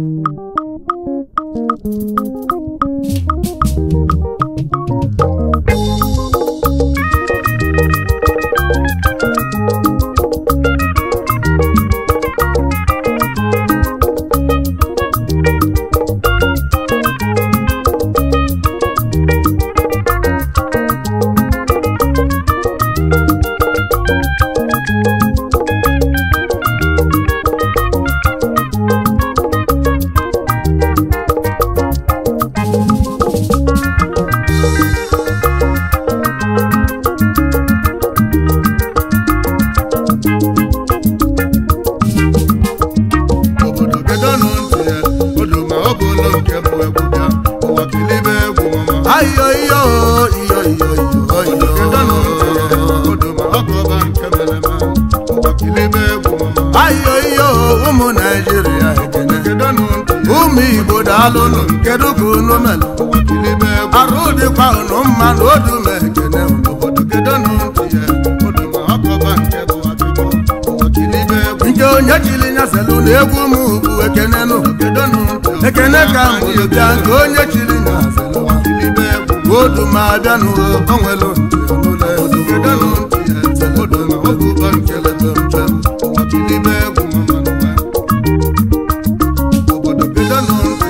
Thank you. alụlụ kedu ka unu mere arụ dịkwa unu mma na odu na ekene nke onye chili nyaselụ na egwu m ugwu ekenenụ ekene ka mbụ bịa nke onye chili nyaselụ odu ma abịa n'onwelu odu ma bụ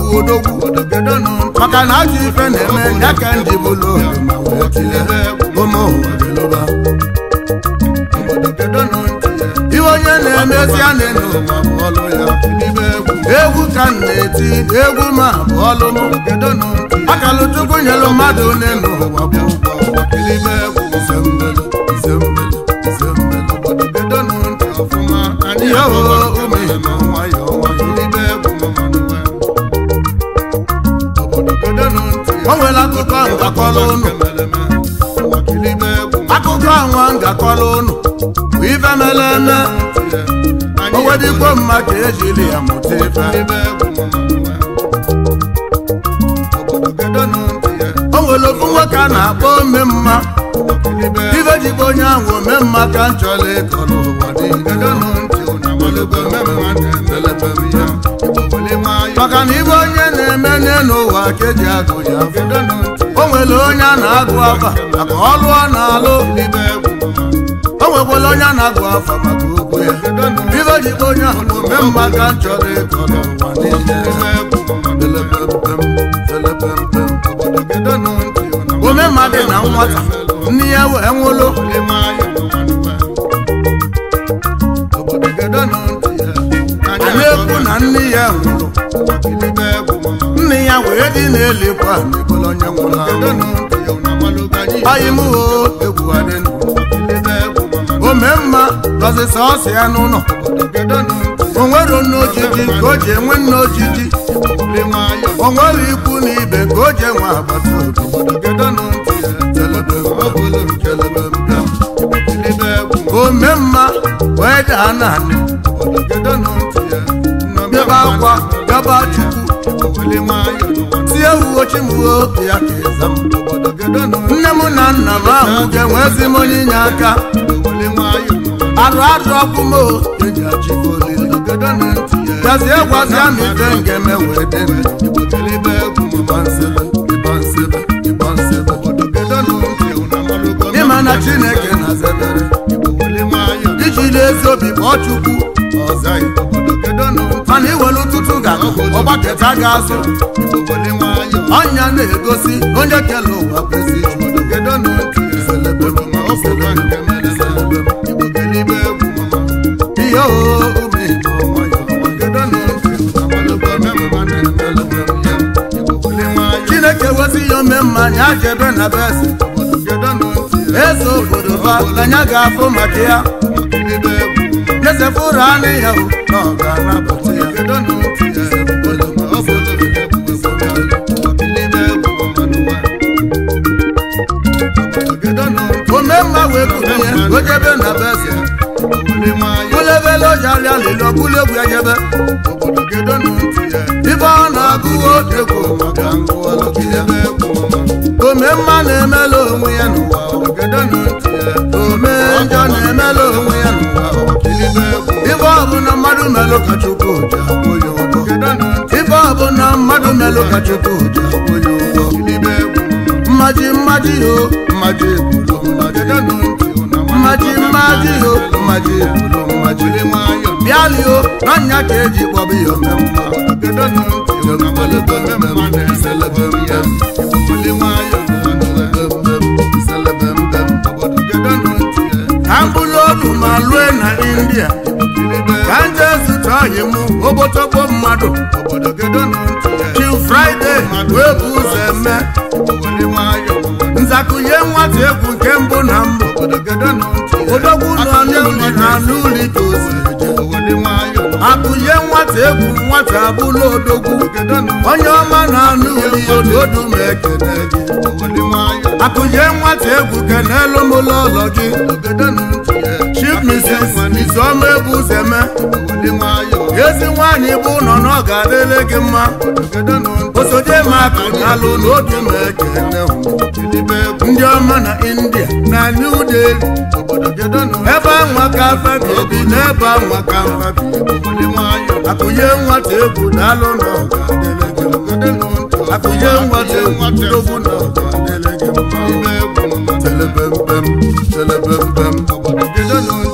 odogwu maka na ajọ ife na-eme ya ka ndị bụlụ onye na-emezi a na ya, egwu ka m na-eti egwu ma ọlụ akalụtukwu nyelu mmadụ na ụwa o nwere akụkọ ngakọrọ ụnụ akụkọ anwa ngakọrọ ụnụ bụ ife mere eme owedikwo mma ka ejiri ya mụta ife o nwere ofu nwoke a na-akpọ ome mma ife jikwa onye ahụ ome mma ka m chọrọ ịkọ n'ụwa maka na ibe onye onye n'ụwa keji agụ ya o nwere onye a na-agụ afa maka ọlụ ọ na-alụ o onye a na-agụ afa maka okwu ya ibe ji onye ahụ ome mma ka chọrọ ịkọ n'ụwa na nwata nne ya wee nwụlụ anyị nwụrụ anya wee dị na-elekwa onye nwụrụ anyị m o egwu adị ome mma dọzịsa ọsị ya n'ụlọ o nwere nne ka o ji enwe nne ojiji o nwere ikwu na ibe ka o ji enwe agbata obi mee mma wee daa naanị ebe akwa gaba chukwu tie ugochimuo ya ka ịza m nne m na nna m ahụ ga-enwezi m onye inye aka arụ arụ ọkụ m gwazie gwazia m ife nke m wee dị ịma na Chineke na-azebere iji n'ezi obi kpọọ mana iwere ụtụtụ ga ọgbakọta ga-azụ ọnya na-egosi onye kele ụwa kwesị ihe chineke wezi ya ome mma anyị ajebe na besi eze obodo ha anya ga-afụ maka ya nyezefụ ụra ya na ga olebele na-agụwa omemma na-emela mmadụ melụ ka ji akwụ ụgwọ ife mmadụ melụ ka ji akwụ ya ụgwọ mmaji mmaji ho mmaji na nya ka eji kpọba ya omemma ha mkpụrụ ọdụ ma lue na india nwaanyị mụ obotogbo mmadụ Till Fraịde, wee bụ ụzọ eme nzakụnye nwata egwu nke mbụ na mbụ odogwu nọ n'ụlọ na n'ụlọ ike ozi akụnye nwata egwu nwata abụla odogwu onye ọma na anụ ụlọ ododo ma ekene gị akụnye nwata egwu kenelụ m ụlọ ụlọ gị ezi nwaanyị bụ ụlọ na ọ ga gị mma osoje maka alụ n'oge ma ndị ọma na india na new delhi ebe anwa ka afebi obi na ebe anwa ka afebi akụnye nwata egwu na alụ na ọ ga gị na ọ ga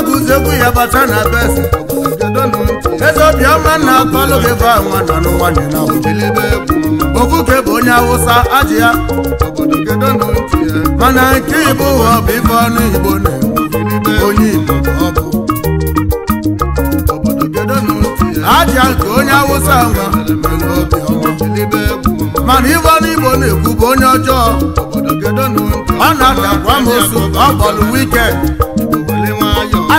agụziekwu ya bata na besi eze obiọma na akọlụ gị bụ anwa nọ n'ụwa okwukwe bụ onye awụsa ajị ya mana nke igbo ụwa bụ ife ọnụ igbo na onye igbo ọ bụ aja nke onye mana ọnụ igbo bụ onye ọjọọ ọ na ọ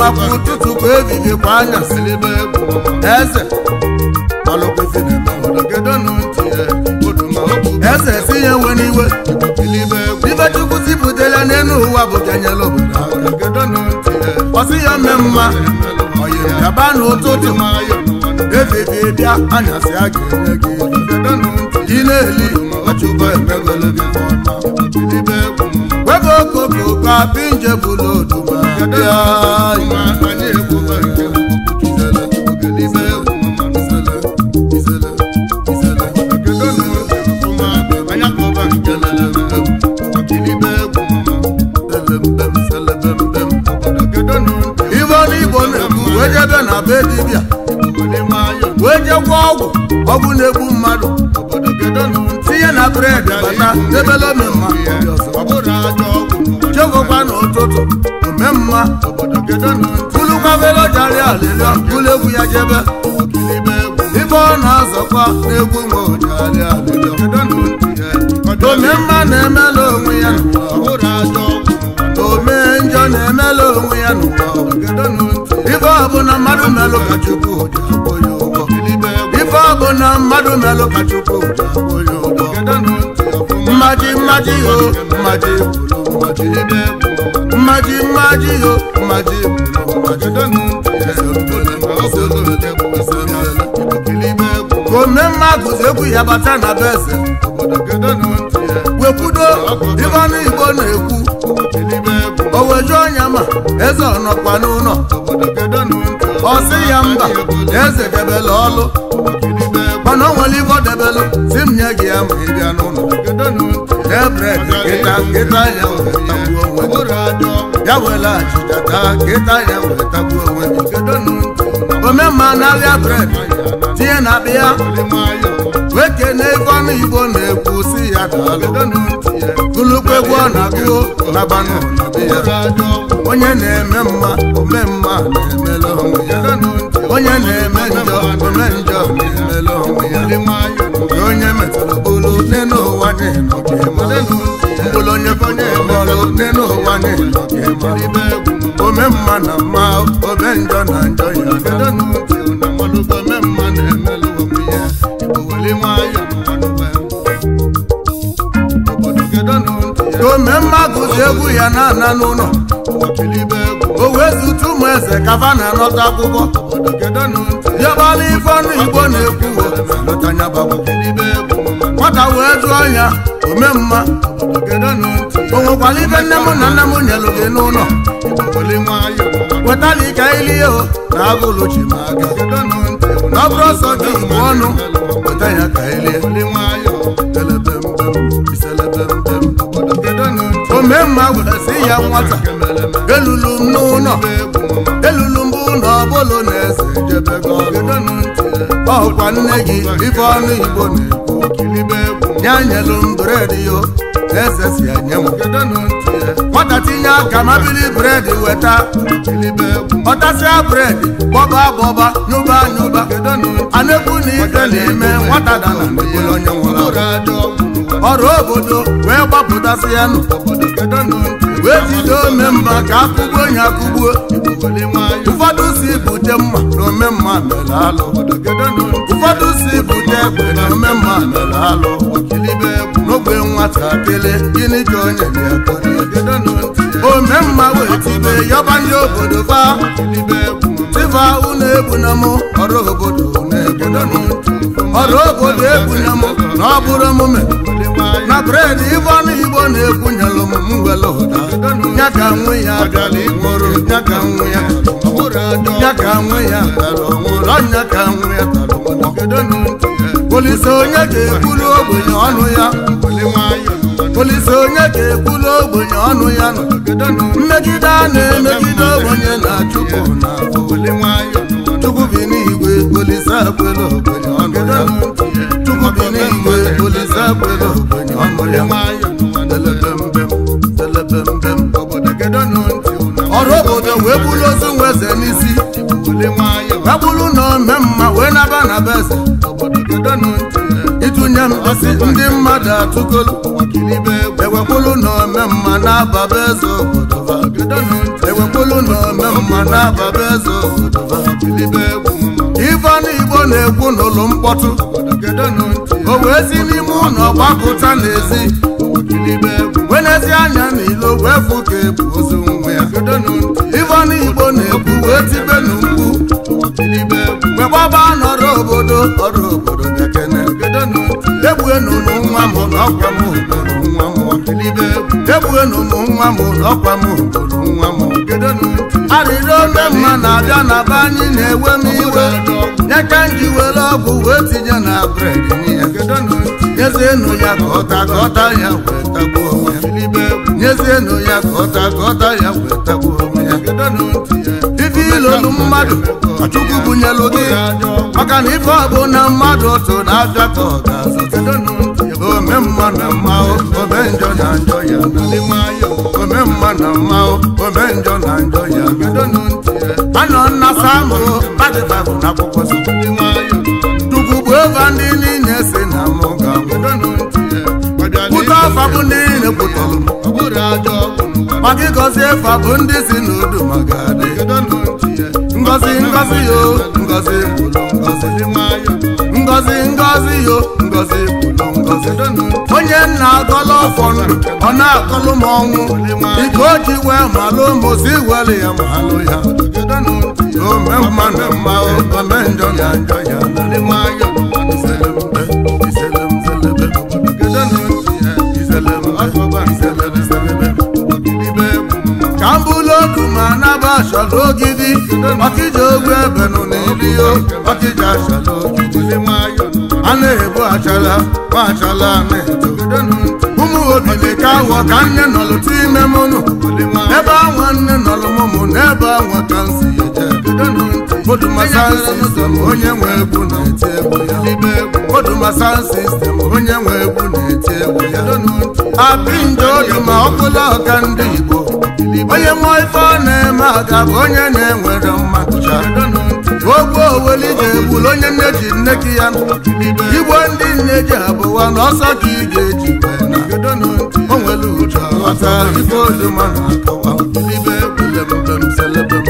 gbapụ ụtụtụ kwa ehihie kwa anyasị bụ eze eze si ya nwe n'iwe ibe zipụtara n'elu ụwa bụ ganyela obodo ọsị ya mme mma gaba n'ụtụtụ efifie bịa anyasị a ga-enye gị ị na-eli gị okoko ka pinje wee jegwa ọgwụ ọgwụ na-egbu mmadụ tinye na bred bata debele ọma tulukwafelojari alịlịọ ụlọegwu ya jebe ibe ọ na-azọkwa n'egwu nwe ojari alịlịọ omemma na-emela onwe ya ome njọ na-emela onwe ya ife ọbụla mmadụ melụ ka chukwu akwụ ya ụgwọ ife ọbụla mmadụ melụ ka chukwu akwụ ya ụgwọ mmaji mmaji o mmaji mmaji mmaji mmaji yo mmaji kome mmadụ egwu ya bata na beze wekwudo ibe ọnụ igbo na-ekwu oweju ọnya ma eze ọnọkwa n'ụlọ ọ ya mba eze debele ọlụ mana o nwere ibe ọ debelụ si m nye gị ya ma ị bịa n'ụlọ ebred ịta ịta ya ya wela achịchata kịta ya wetagbuo onwe gị omemma na arịa bred tinye na abịa wekene ego ọnụ igbo na-ekwu si ya daalụ gụlụkwa egwu ọ na-agụ na onye na-eme mma ome na-emele onwe ya onye na-eme njọ ome na ya onye dị ote n'ụwa niile ome mma na mma ome njọ na njọ ya ome mma gụzi egwu ya na-ana n'ụlọ o wezụta ụmụ eze kafa na-anọta akwụkwọ dịọbala ife ọnụ igbo na-ekwu nwata wee jụọ ya omemma o nwekwara ife nne m na nna m nyelụ gị n'ụlọ wetala ike ili o, na agụlụ ji ma aga ọ bụrụ ọsọ gị igbo ọnụ weta ya ka ilie omemma gwara sị ya nwata elulu m n'ụlọ elulu m bụ na ọ bụlụ na ọkwa nne gị ife ọnụ igbo ya nyelu m bred yo na-esesi nye m nwata tinye aka mabili bred weta ọtasịa bred gbọba gbọba nyụba nyụba anekwu na ife na-eme nwata dara onye nwụrụ ọrụ obodo wee gbapụtasị ya nụ wee jide omemma ka akụgbu onye akụgbuo ụfọdụ si bute mma na omemma mere alụ ụfọdụ si bute egbe na omemma mere alụ n'ogbe nwatakịrị gịnị ka onye omemma wee tibe yọba ndị obodo baa tiba unu egbuna m ọrụ obodo na-egedono ọrụ obodo egbuna m na ọ bụrụ omume na bred ibe ọnụ na-ekwunyelụ m nwelụ ụda ya ka nwe ya dara ikporo ya ka nwe ya ya ka nwe ya tara ọnwụrụ ọnya ka nwe ya tara polisi onye ga-ekwuru ogbenye ọnụ ya polisi onye ga-ekwuru ogbenye ọnụ ya mmegide a na-emegide ogbenye na chukwu na chukwu bi n'igwe polisi akwela ogbenye ọnụ ya chukwu bi n'igwe polise akwela ogbenye ọrụ obodo wee bụrụ ozu nwe eze n'isi wee bụrụ na ome mma wee naba na be eze ịtụnye m asị ndị mmadụ atụkolu ewepụrụ na ome mma na-aba be eze obodo na ome mma na-aba be eze obodo ife na-ekwu n'ụlọ mkpọtụ o wee si n'ime ụlọ gbapụta n'ezi wee n'ezi anya n'ilo wee fụ ka ebu ozu nwe ya ivon igbo na ekwu wee tibe n'ugwu mgbe gbaba n'ọrụ obodo ọrụ obodo gekene egbuenunu nwa m na ọgwa m obodo nwa m elibe egbughenu m nwa m n'ọkwa m obodo nwa m arịrị ome mma na-abịa na be anyị na-ewe m iwe nyeka nji were ọgwụ wee tinye na bred nyezienụ ya ka ọta ka ya wee tagbuo onwe ya ya ka ọta ka ọta ya wee tagbuo onwe ya ife ilolu mmadụ chukwu bunyelu gị maka na ife ọbụ na mmadụ otu na-abịa ka ọ ga-azụ mma na mma ome njọ na njọ ya ome mma na mma ome njọ na njọ ya bido e. anọ nna samụ na akwụkwọ ova ndị niile si na mụ ga ntị e. ndị niile ọ maka ịgọzi efa bụ ndị si n'udu maka adị e. ngọzi yo ngọzi kwuru ngọzi ngozi ngọzi yo ngọzi ikenna nna ọfọ ndụ ọ na-akọlụ ọnwụ ike o ji wee malụ mozi ya ya ome mmanụ na mma ome njọ ya njọ ya ka m bụlụ ma anaba achọrọ ogidi ọkịja ogwe ebe nụ n'iliyo ọkịja achọrọ ogidi a na-ebu achala ma achala na-eto ụmụ obili ka awọ ka nne nọlụtụ ime mụnụ ebe anwa nne nọlụ mụmụ n'ebe anwa ka nsi Odumasan sistem onye nwe na-eti egwu ya Odumasan onye na ọka ndị Igbo onye mmụọ ife ọ na-eme aga onye na-enwere mma ogwu oweli ji egbulu onye nne ji nne gị ya igbo ndị nne ji abụwa na ọsọ ka ị ga-eji o nwere uche ọghọta na-akọwa mbem selebem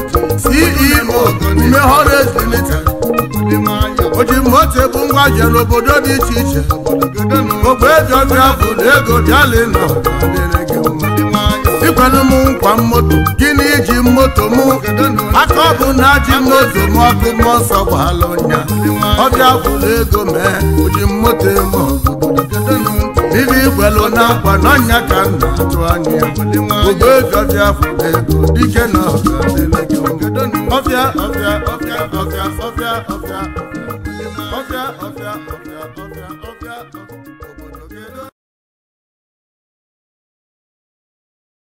CEO Umehola Ezulite oji moto ebu ngwa jere obodo dị iche iche ogbejiọbịabụ na ego dalịnọ ikwelu m nkwa moto gịnị iji moto mụ. aka ọ bụ na ji moto mụ ọkụ mmụọ nsọ gbaala ọnya ọbịa bụ ego mee oji moto eme ọgụ dịrị na n'akwa n'anya ka m na-atụ anya ogoejiọbịa fụrụ ego dike na ọbịa ọbịa ọbịa ọbịa ọbịa ọbịa